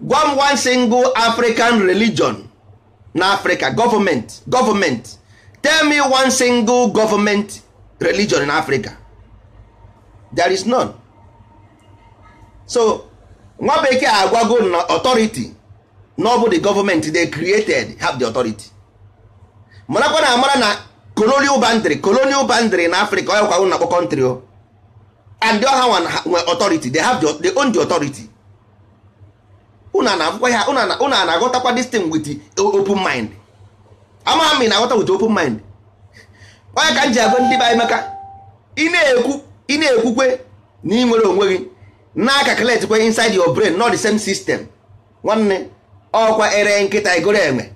gwa m one single african religion na africa government government tell me one single government religion in africa there is none. so nwa bekee agwago na ọtọriti na ọ bụ the government they created have the authority marakwa na amara na colonial boundary colonial boundary na Africa ọ yakwago na country o and the ọha nwe authority they have the, they own the authority una na-akwụkwa ya una na-aghọtakwa this thing with open mind amaghị m ị na-aghọta with open mind onye ka m ji agwa ndị be anyị maka ị na-ekwu ị na-ekwukwe na ị nwere onwe gị na calculate inside your brain not the same system nwanne ọkwa oh, ere nkịta igoro eme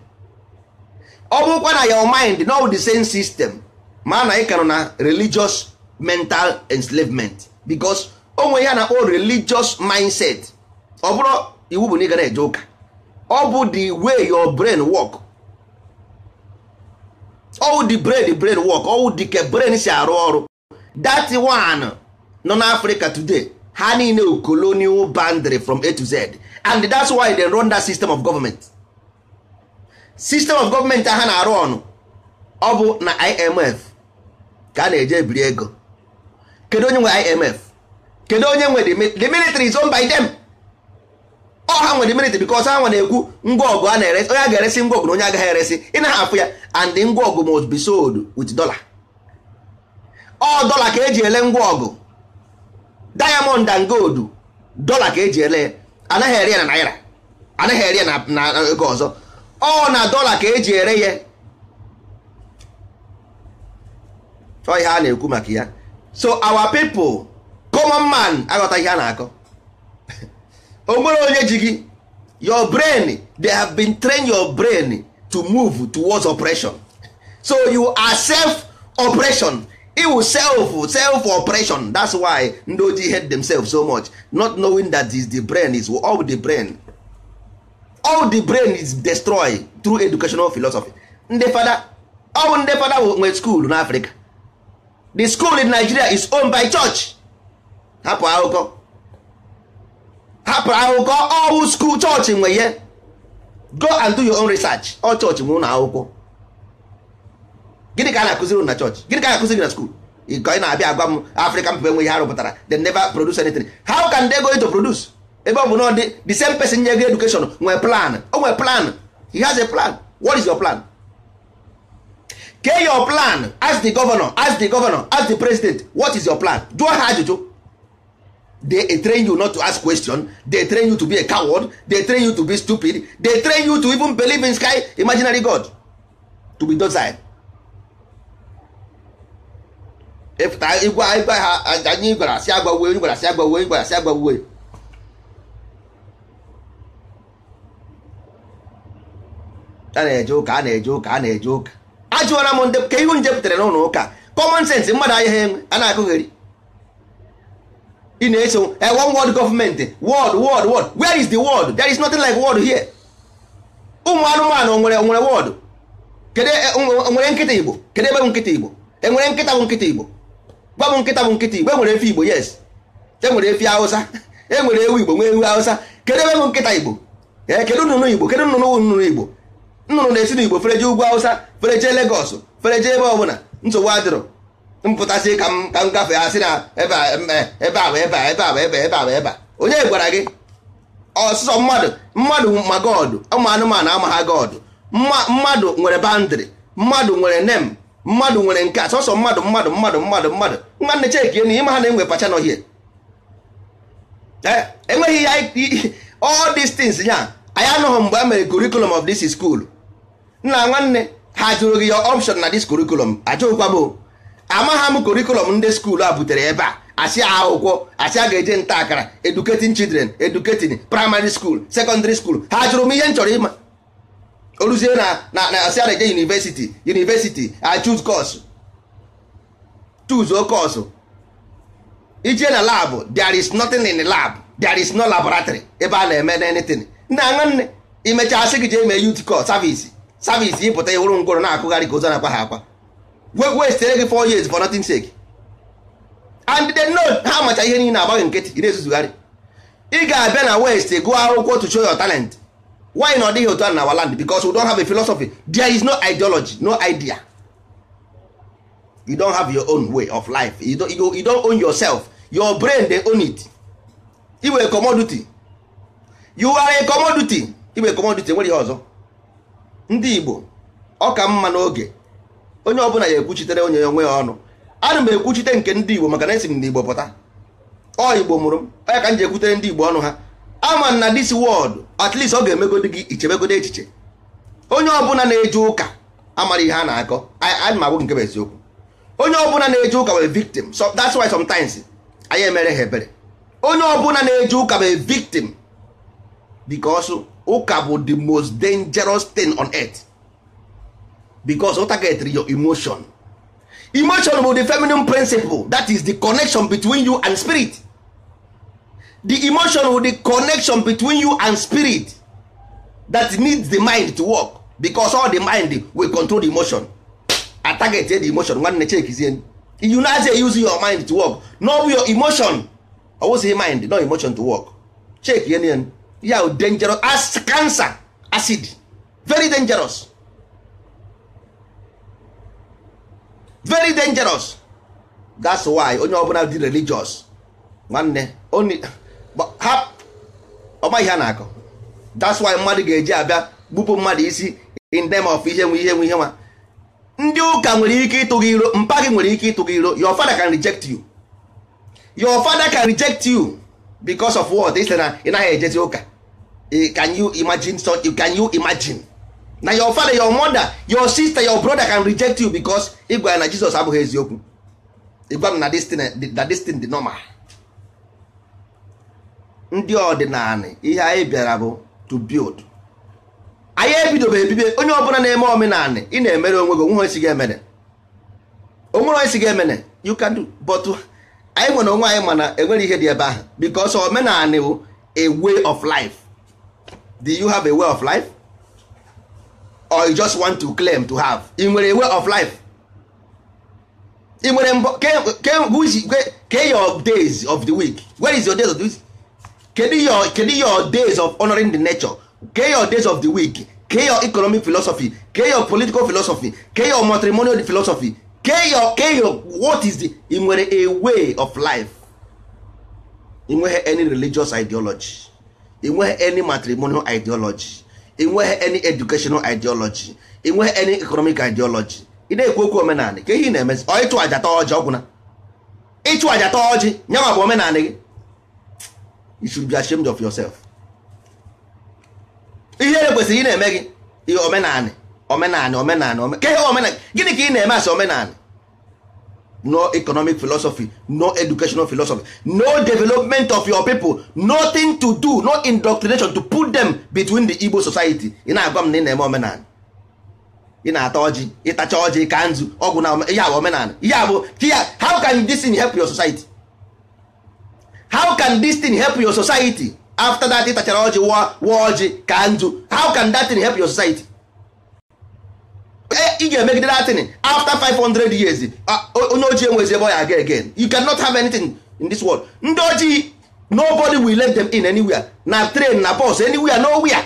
ọ bụrụkwa na your mind not the same system ma na ị kanụ na religious mental enslavement because onwe ya na o religious mindset ọ bụrụ iwu bụ na ị gara eje ụka ọ bụ the way your brain work all the brain the brain work all the brain si arụ ọrụ that one nọ n'Africa today ha niile colonial boundary from a to z and that's why they run that system of government system of government ha na-arụ ọnụ ọ bụ na imf ka a na-eje biri ego kedu onye nwe imf kedu onye nwe the military is owned by them ọ ha nwe the military because ha nwe na-ekwu ngwa ọgụ a na-eresi onye a ga-eresi ngwa ọgụ na onye agaghị eresi ị na hapụ ya and ngwa ọgụ must be sold with dollar ọ dollar ka eji ele ngwa ọgụ diamond and gold dọla ka eji ele anaghị ere ya na naira anaghị ere na ego ọzọ ọ na dollar ka eji ere ya ọ ihe a na-ekwu maka ya so our people common man aghọta ihe a na-akọ o onye ji gị your brain they have been train your brain to move towards operation so you are self operation. iwu self self operation that's why ndị ojii hate themselves so much not knowing that is the brain is all the brain all the brain is destroyed through educational philosophy ndị fada all ndị fada nwe school africa the school in nigeria is owned by church hapụ akụkọ hapụ akụkọ all school church nwe ihe go and do your own research all church nwe ụlọ akwụkwọ gịnị ka a na-akụziri na chọọchị gịnị ka a na-akụziri na skuul ka ị na-abịa agwa m afrịka mba enwe ha rụpụtara they never produce anything how can they go to produce ebe ọ bụ na dị the same person nye gị education nwee plan o nwee plan he has a plan what is your plan kee your plan as the governor as the governor as the president what is your plan jụọ ha ajụjụ they train you not to ask question they train you to be a coward they train you to be stupid they train you to even believe in sky imaginary god to be docile ịpụta igwe igwe ha anyị gwara asị agbawe gwara asị agbawe gwara asị agbawe a na-eje ụka a na-eje ụka a na-eje ụka ajụwara m ndị ka ihu nje pụtara n'ụlọ ụka common sense mmadụ ahịa ha enwe a na-agụgheri ị na-eso one world gọọmenti word word word where is the word there is nothing like word here ụmụ anụmanụ onwere onwere word Kedu nwere nkịta igbo kedu ebe bụ nkịta igbo enwere nkịta bụ nkịta igbo gwa m nkịta bụ nkịta igbo enwere efi igbo yes enwere efi e enwere ewu igbo nwee ewu awụsa kedu ebe bụ nkịta igbo ee eh, kedu nnụnụ igbo kedu nnụnụ nnụnụ igbo nnụnụ na-esi n'igbo igbo jee ugwu hausa fere jee legos fere ebe ọbụla nsogbu adịrọ mpụtasị ka m ka m gafee asị na eh, ebe a ebe a ebe a ebe ebe a ebe a onye gwara gị ọsụsọ mmadụ mmadụ ma godụ ụmụ anụmanụ ama ha godụ mmadụ nwere bandịrị mmadụ nwere nem mmadụ nwere nke a sọsọ mmadụ mmadụ mmadụ mmadụ mmadụ nwanne chekie na ịma ha na-enwe pacha n'ọhịa eh, enweghị ya all these things ya anyị anụghị mgbe a mere curriculum of this school nna nwanne ha jụrụ gị ya option na this curriculum ajụkwa m amagha m curriculum ndị skuul a butere ebe a asị akwụkwọ asị a ga-eje nta akara educating children educating primary school secondary school ha jụrụ m ihe m chọrọ ịma oruzie na na asị a na-eje university university I choose course choose o course ije na lab there is nothing in the lab there is no laboratory ebe a na-eme anything nna nwanne imechaa sị gị jee mee youth course service service ịpụta ịhụrụ ngwọrọ na-akụgharị ka ụzọ na-akwa ha akwa westere gị 4 years for nothing sake and they know ha macha ihe niile agbaghị nkịtị ị na-ezuzugharị ị ga-abịa na west gụọ akwụkwọ to show your talent why na ọ dịghị otu a na our land because we don't have a philosophy there is no ideology no idea you don't have your own way of life you don't, you, don't own yourself your brain dey own it iwe were commodity you are a commodity you were commodity nwere ihe ọzọ ndị Igbo ọ ka mma n'oge onye ọbụla ya ekwuchitere onye onwe ya ọnụ ana m ekwuchite nke ndị Igbo maka na esi m n'Igbo pụta ọ Igbo mụrụ m onye ka m ji ekwutere ndị Igbo ọnụ ha ama na this world at least ọ ga-emegodi gị ichebegodi echiche onye ọbụla na-eje ụka amara ihe a na-akọ anyị nke bụ eziokwu onye ọbụla na-eje ụka bụ victim so that's why sometimes anyị emere ha ebere onye ọbụla na-eje ụka bụ victim because ụka bụ the most dangerous thing on earth because ụta getri your emotion emotion bụ the feminine principle that is the connection between you and spirit the emotion with the connection between you and spirit that needs the mind to work because all the mind will control the emotion a target the emotion nwanne chekizie you na say use your mind to work no your emotion ọwụsị mind no emotion to work check ihe ya dangerous as cancer acid very dangerous very dangerous that's why onye ọbụla dị religious nwanne only ọma ihe a na-akọ that's why mmadụ ga-eji abịa gbupụ mmadụ isi in name of ihe nwe ihe nwe ihe nwa ndị ụka nwere ike ịtụ gị iro mpa gị nwere ike ịtụ gị iro your father can reject you your father can reject you because of what ị sị na ị naghị ejezi ụka eh, can you imagine so can you imagine na your father your mother your sister your brother can reject you because ịgwa ya na Jesus abụghị eziokwu ịgwa m na this thing dị normal ndị ọdịnala ihe anyị bịara bụ to build anyị ebidobe ebibe onye ọbụla na-eme omenala ị na-emere onwe gị onwe esi ga-emene onwere onye si ga-emene you can do but anyị nwere onwe anyị mana enwere ihe dị ebe ahụ because omenala bụ a way of life do you have a way of life or you just want to claim to have ị nwere a way of life ị nwere mbọ ke your days of the week where is your days of the week kedu your kedu your days of honoring the nature Ke your days of the week Ke your economic philosophy Ke your political philosophy Ke your matrimonial philosophy Ke your Ke your what is the nwere a way of life ị nweghị any religious ideology ị nweghị any matrimonial ideology ị nweghị any educational ideology ị nweghị any economic ideology ị na-ekwu okwu omenala ka ihe ị na-emezi ọ ịchụ ajatọ tọọ ọjị ọgwụna ịchụ aja ọjị bụ omenala gị you should be ashamed of yourself ihe e kwesịrị ị na-eme gị ihe omenanị omenanị omenanị ke ihe omenanị gịnị ka ị na-eme asị omenanị no economic philosophy no educational philosophy no development of your people nothing to do no indoctrination to put them between the Igbo society ị na-agwa m na ị na-eme omenanị ị na-ata ọjị ịtacha ọjị ka nzu ọgwụ na ihe bụ omenanị ihe bụ how can this thing help your society how can this thing help your society after that tachara ọjị wa ọjị ka ndụ how can that thing help your society ị eh, ga-emegide that thing after 500 years onye ojii enwezi ebe ọ ya aga again you cannot have anything in this world ndị ojii nobody will let them in anywhere na train na bus anywhere nowhere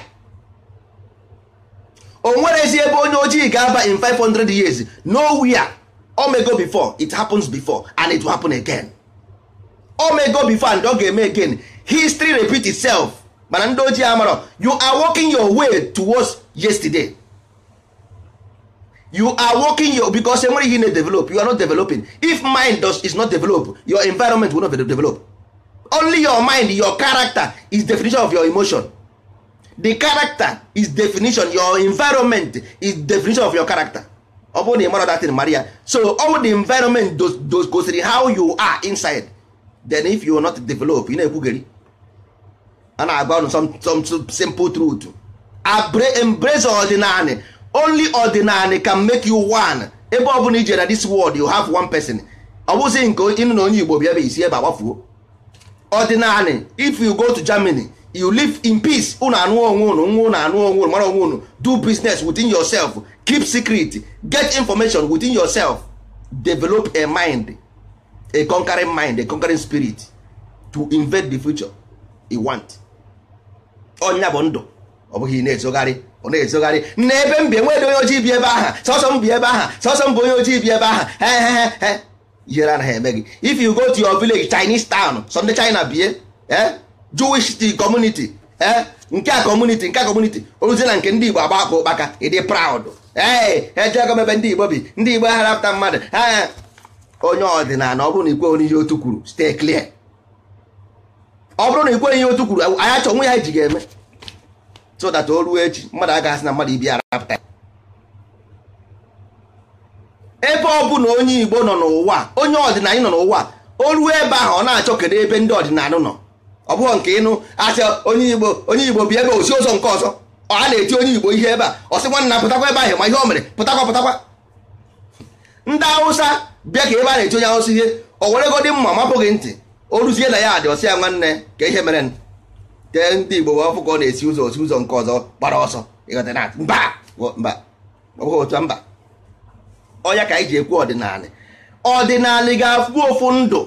o nwerezi ebe onye ojii ga-aba in 500 years nowhere omego before it happens before and it will happen again o mego before and ọ ga-eme again history repeat itself mana ndị ojii amarọ you are working your way towards yesterday you are working your because enwere ihe na-develop you are not developing if mind does, is not develop your environment will not develop only your mind your character is definition of your emotion the character is definition your environment is definition of your character ọ bụrụ na ị mara datin mara ya so all the environment goes gosiri how you are inside then if you not develop you na-ekwugeri a na-agba ụnụ some some simple truth embrace ordinary. only ordinary can make you one ebe ọ bụla ijere na this world you have one person ọ bụzi nke ịnụ na onye Igbo bịa ebe isi ebe agbafuo ordinary if you go to Germany you live in peace unu anụ onwe unu nwa unu anụ onwe unu mara onwe unu do business within yourself keep secret get information within yourself develop a mind a conquering mind a conquering spirit to invade the future you want onya bụ ndụ ọ bụghị na-ezogharị ọ na-ezogharị na ebe m bi onye ojii bi ebe aha sọsọ m ebe aha sọsọ m bụ onye ojii bi ebe aha ihere anaghị eme gị if you go to your village Chinese town Sọnde China bie eh? Jewish community nke a community nke a community ozi na nke ndị Igbo agba akpa ụkpaka ịdị proud ee ejego ndị Igbo bi ndị Igbo harapụta mmadụ onye ọdịnala ọ bụrụ na ikweghị ihe otu kwuru stay clear ọ bụrụ na ikweghị ihe otu kwuru anyị achọ nwe ya ji ga-eme so that o ruo echi mmadụ aga asị na mmadụ ibi ara arapụta ebe ọ bụ na onye Igbo nọ n'ụwa onye ọdịnala nọ n'ụwa o ruo ebe ahụ ọ na-achọ kedu ebe ndị ọdịnala nọ ọ bụghị nke ịnụ asị onye Igbo onye Igbo bi ebe osi ụzọ nke ọzọ a na-eti onye Igbo ihe ebe a ọ sị nwanna pụtakwa ebe ahụ ma ihe o mere pụtakwa pụtakwa ndị Hausa bịa ka ebe a na-eche onye ahụsi ihe o weregodi mma mapụghị ntị o ruzie na ya adị ọsị ya nwanne ka ihe mere tee ndị Igbo wee ọfụ ka ọ na-esi ụzọ osi ụzọ nke ọzọ gbara ọsọ mba ọnya ka anyị ji ekwu ọdịnala ọdịnala ga-afụ ofu ndụ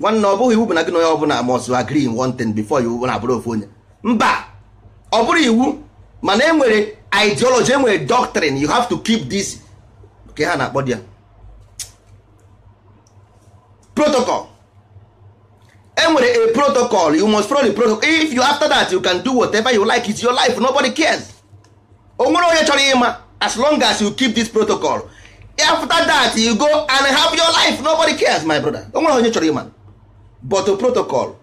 nwanne ọ bụghị iwu bụ na gị na onye ọbụla must agree in one thing before you na abụrụ ofu onye mba ọ bụrụ iwu mana e nwere ideology enwere doctrine you have to keep this ka ha na-akpọ di ya protocol enwere a protocol you must follow the protocol if you after that you can do whatever you like it's your life nobody cares onwere onye chọrọ ịma as long as you keep this protocol after that you go and have your life nobody cares my brother onwere onye chọrọ ịma but protocol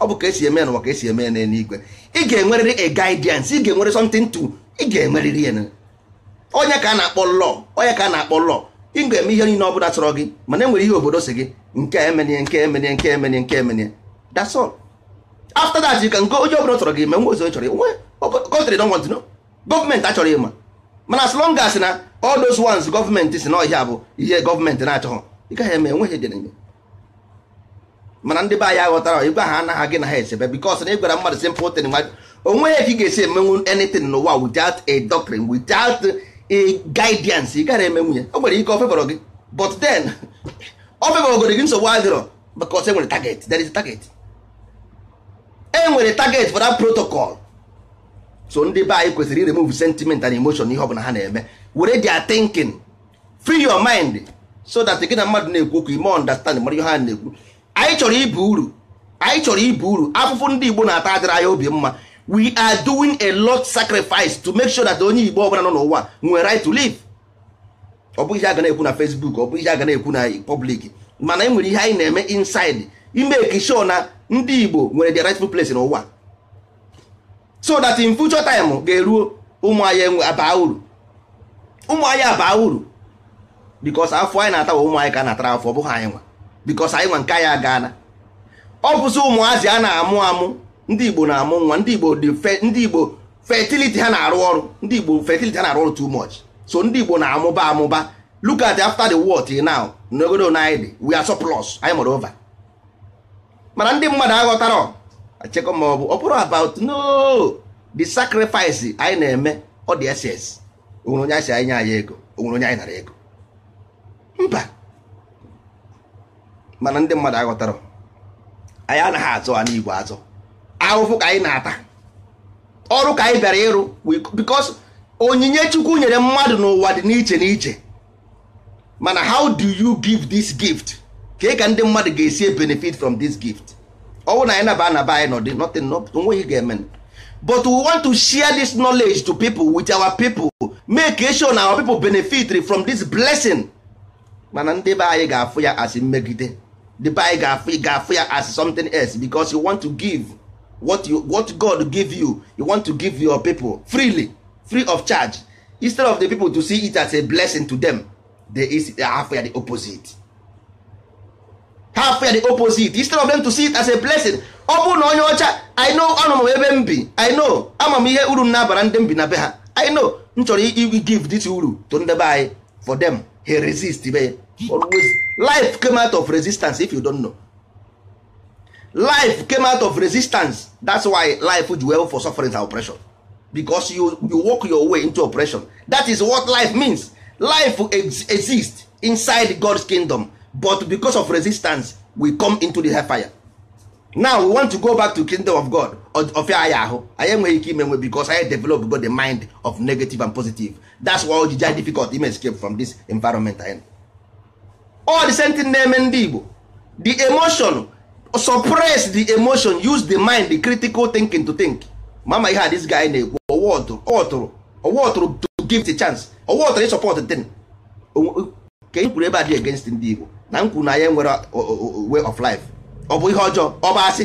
ọ bụ ka esi eme n'ụwa ka esi eme igwe ị ga-enwerịrị a guidance ị ga-enwere something to ị ga-enwerịrị ya onye ka a na-akpọ law onye ka a na-akpọ law ị ga-eme ihe niile ọ bụla chọrọ gị mana enwere ihe obodo si gị nke emenye nke emenye nke emenye nke emenye that's all after that nke can go onye obodo chọrọ gị me nwe ozo chọrọ nwe country don't want to gọọmenti achọrọ ịma mana as long as na all those ones gọọmenti si na ọhịa bụ ihe gọọmenti na-achọghọ ị gaghị eme enweghị ejere mana ndị be anyị aghọtara ịgwa ha anaghị gị na ha esebe because na ịgwara e mmadụ simple thing ya ka ị ga-esi emenwu anything n'ụwa without a doctrine without guidance ị gara eme nwunye o nwere ike ofebọrọ gị but then ofebọrọgoro gị nsogbu adịrọ because enwere target there is a target enwere target for that protocol so ndị be anyị kwesịrị iremove sentiment and emotion ihe ọbụla ha na-eme were their thinking free your mind so that gị na mmadụ na-ekwu okwu ime understand mara ihe ha na-ekwu anyị chọrọ ibu uru anyị chọrọ ibu uru afụfụ ndị Igbo na-ata adịrị anya obi mma we are doing a lot sacrifice to make sure that onye igbo ọbụla nọ n'ụwa nwere right to live ọ bụghị ihe aga na-ekwu na facebook ọ bụghị ihe aga na-ekwu na public mana e nwere ihe anyị na-eme inside imeki sure na ndị igbo nwere the rightful place n'ụwa so that in future time ga-eruo ụmụ anyị abaa uru ụmụ anyị abaa uru because afọ anyị na-atawa ụmụ anyị ka na-atara afọ ọ bụghị anyị nwa because anyị nwa nke anyị agaana ọ bụzi ụmụazị a na-amụ amụ ndị igbo na-amụ nwa ndị igbo ndị igbo fertility ha na-arụ ọrụ ndị igbo fertility ha na-arụ ọrụ too much so ndị igbo na-amụba amụba look at after the war till now n'ogodo anyị dị we are surplus anyị mụrụ over mana ndị mmadụ aghọtara achekọ ma ọ bụ ọ bụrụ about no the sacrifice anyị na-eme ọ dị ss onwere onye asi anyị nye anyị ego onwere onye anyị nara ego mba mana ndị mmadụ aghọtara anyị anaghị azụ ha n'igwe azụ ahụhụ ka anyị na-ata ọrụ ka anyị bịara ịrụ because onyinye chukwu nyere mmadụ n'ụwa dị n'iche n'iche mana how do you give this gift ka ka ndị mmadụ ga-esi benefit from this gift ọnwụ na anyị naba anaba anyị nọdị nothing onweghị ga-eme but we want to share this knowledge to people with our people make e sure na our people benefit from this blessing mana ndị be anyị ga-afụ ya as mmegide ndị be anyị ga-afụ ya as something else because you want to give what you what god give you you want to give your people freely free of charge instead of the people to see it as a blessing to them they is half the opposite half the opposite instead of them to see it as a blessing ọ bụrụ na onye ọcha i know anọ m ebe m bi i know ama m ihe uru m na-abara ndị m bi na be ha i know m chọrọ give this uru to ndị be anyị for them he resist be always life came out of resistance if you don't know life came out of resistance that's why life ji well for suffering and oppression because you, you walk your way into oppression that is what life means life ex exists inside God's kingdom but because of resistance we come into the hellfire now we want to go back to kingdom of God ofia anyị ahụ anyị enweghị ike imenwe because anyị develop God the mind of negative and positive that's why o ji difficult ime escape from this environment all the same thing na-eme ndị Igbo the emotion suppress the emotion use the mind the critical thinking to think mama ihe a this guy na-ekwu ọwụtụrụ ọwụtụrụ to give the chance ọwụtụrụ ị support the ka e kwuru ebe a dị against ndị Igbo na m kwuru na anyị nwere way of life ọ bụ ihe ọjọọ ọ bụ asị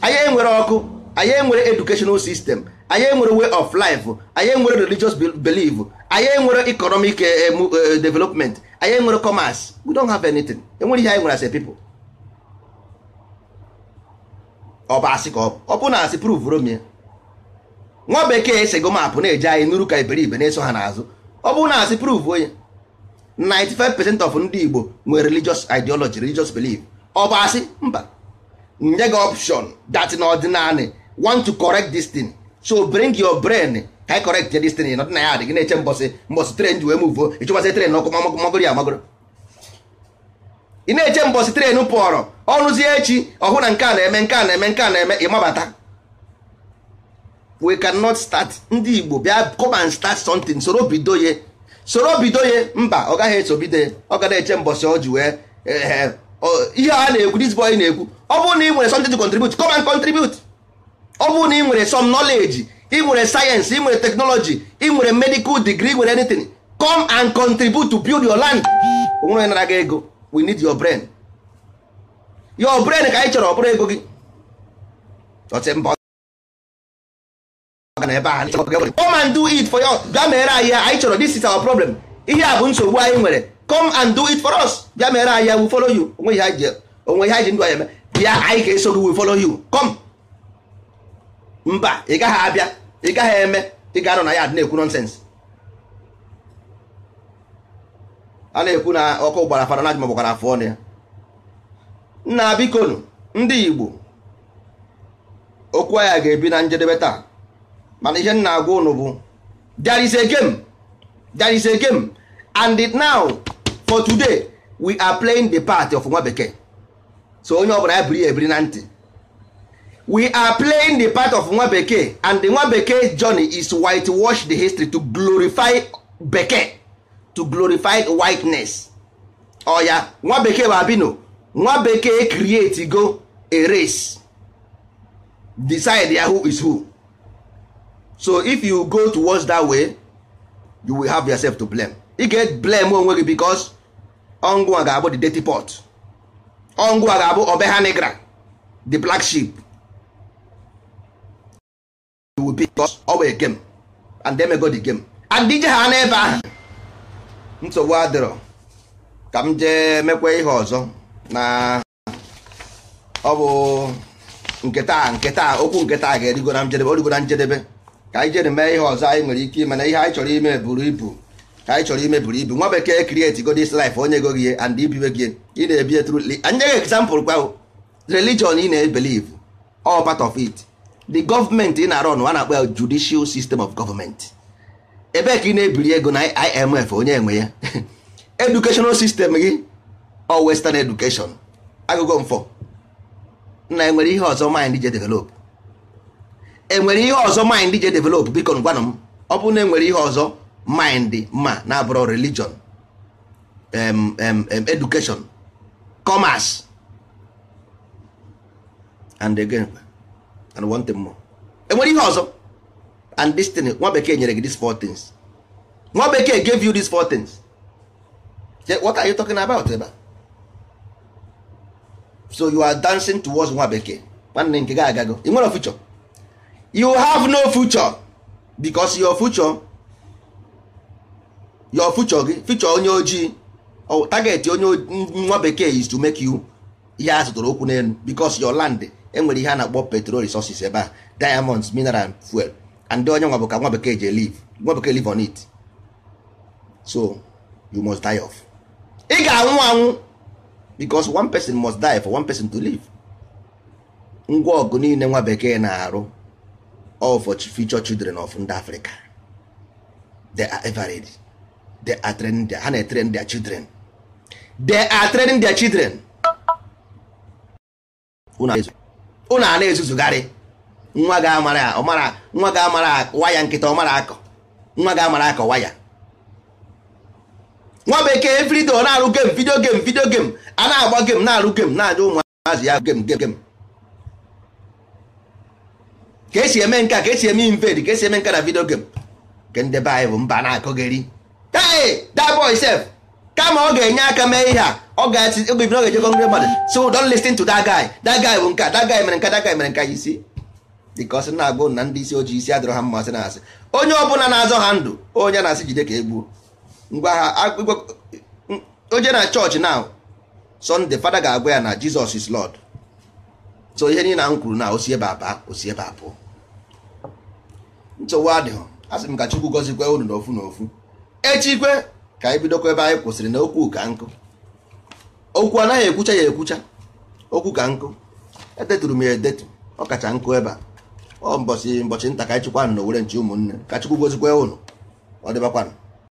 anyị e nwere ọkụ anyị e nwere educational system anyị e nwere way of life anyị nwere religious belief anyị nwere economic eh, eh, eh, development anyị nwere commerce we don't have anything enwere ihe anyị nwere as a people ọ bụ asị ka ọ bụ na asị pruvuru m ya nwa bekee esego maapụ na-eje anyị n'uru ka iberibe na-eso ha n'azụ ọ bụ na asị pruvuo ya 95% of ndị Igbo nwere religious ideology religious belief ọ bụ asị mba nye gị option that na ọdịnanị want to correct this thing so bring your brain ka correct this thing na ọdịnaya adịghị na-eche mbọsị mbọsị tren ji wee muvuo ịchụkwasị tren n'ọkụ magoro ya magoro ị na-eche mbọsị trenu pụọrọ ọrụzie echi ọhụ na nke a na-eme nke a na-eme nke a na-eme ịmabata we cannot start ndị Igbo bịa come start something soro bido ya soro bido ya mba ọ gaghị eso bido ya ọ ga na-eche mbọsị ọ ji ee eh, eh, ihe a na-ekwu this boy na-ekwu ọ bụrụ na ị nwere something to contribute come and contribute ọ bụrụ na ị nwere some knowledge ị nwere sayensị ị nwere teknọlọji ị nwere medical degree ị nwere anything come and contribute to build your land onwere nara gị ego we need your brain your brain ka anyị chọrọ ọbụrụ ego gị come and do it for us bịa mere anyị ya anyị chọrọ this is our problem ihe a bụ nsogbu anyị nwere come and do it for us bịa mere anyị ya we follow you onwe ihe anyị ji ndụ anyị eme bịa anyị ga-eso gị we follow you come mba ị gaghị abịa ị gaghị eme ị ga-anọ na ya na-ekwu nonsense a na-ekwu na ọkụ gbara fananaj maọbụkwara afọ ọnụ ya nna bikonu ndị igbo okwu ya ga-ebi na njedebe taa mana ihe nna agwa ụnụ bụ there is a game there is a game and now for today we are playing the part of nwa bekee so onye bụla ya biri ya ebiri na ntị we are playing the part of nwa bekee and the nwa bekee journey is whitewash the history to glorify bekee to glorify whiteness ọ oh, ya nwa bekee babino nwa bekee create go a race decide ya who is who so if you go towards that way you will have yourself to blame ị get blame onwe gị because ọngụ a ga-abụ the dirty pot ọngụ a ga-abụ obe ha negra the black sheep you will be because ọ bụ game and they may go the game and dije ha n'ebe ahụ nsogbu adịrọ ka m jee mekwa ihe ọzọ na ọ bụ nketa nketa okwu nketa ga-erigo na njedebe origo na njedebe ka anyị jere mee ihe ọzọ anyị nwere ike ime na ihe anyị chọrọ ime buru ibu ka anyị chọrọ ime buru ibu nwa bekee create go this life onye go gị and ibiwe gị ị na-ebi tru anyị nyeghị example kwa religion ị na ebeliv all part of it the government ị na-arọ nwa na-akpọ ya judicial system of government ebee ka ị na-ebiri ego na IMF onye enwe ya educational system gị ọ western education agụgụ mfọ na enwere ihe ọzọ mind je develop enwere ihe ọzọ mind je develop biko ngwanụ m ọ bụrụ na enwere ihe ọzọ mind ma na-abụrụ religion um, education commerce and again and one thing more enwere ihe ọzọ and this thing nwa bekee nyere gị these four things nwa bekee gave you these four things what are you talking about ebe so you are dancing towards nwa bekee nwanne nke gị agago one nwere future you have no future because your future your future gị future onye ojii target onye nwa bekee is to make you ihe a zụtara okwu n'elu because your land enwere ihe a na-akpọ petrol resources ebe a diamonds mineral fuel and onye nwa bụ nwa bekee ji live nwa bekee live on it so you must die off ị ga-anwụ anwụ because one person must die for one person to live ngwa ọgụ niile nwa bekee na-arụ all for future children of ndị Africa they are ever ready they are training their, ha na-etrain their children they are training their children unu a na-ezuzugharị nwa ga amara ọmara nwa ga amara waya nkịta ọmara akọ nwa ga amara akọ waya nwa bekee evrido na-arụ gem vidio gem vidio gem a na-agba gem na-arụ gem na-aja ụmụazị ya gem gem gem ka esi eme nke a ka esi eme invade ka esi eme nke na vidio gem nke ndị be anyị bụ mba na-akọgeri hey that boy sef kama ọ ga-enye aka mee ihe a ọ ga-ejekọ ndị mmadụ so don listin to that guy that guy bụ nke that guy mere nke that guy mere nke anyị si because na agụ na ndị isi ojii isi adịrọ ha mmasị na asị onye ọbụla na-azọ ha ndụ onye na-asị jide ka egbuo ngwa ha onye na chọọchị na sọnde fada ga-agwa ya na jizọs is lọd so ihe niile na kwuru na osi ebe aba osi ebe abụọ nsogbu adịghị asị m ka chukwu gọzikwa unu n'ofu n'ofu echikwe ka anyị bidokwa ebe anyị kwụsịrị na okwu ka nkụ okwu anaghị ekwucha ya ekwucha okwu ka nkụ edeturu m ya edetu ọ kacha nkụ ebe a ọ mbọchị mbọchị nta ka anyị na owere nche ụmụnne ka chukwu gozikwa ụnụ ọ dịbakwanụ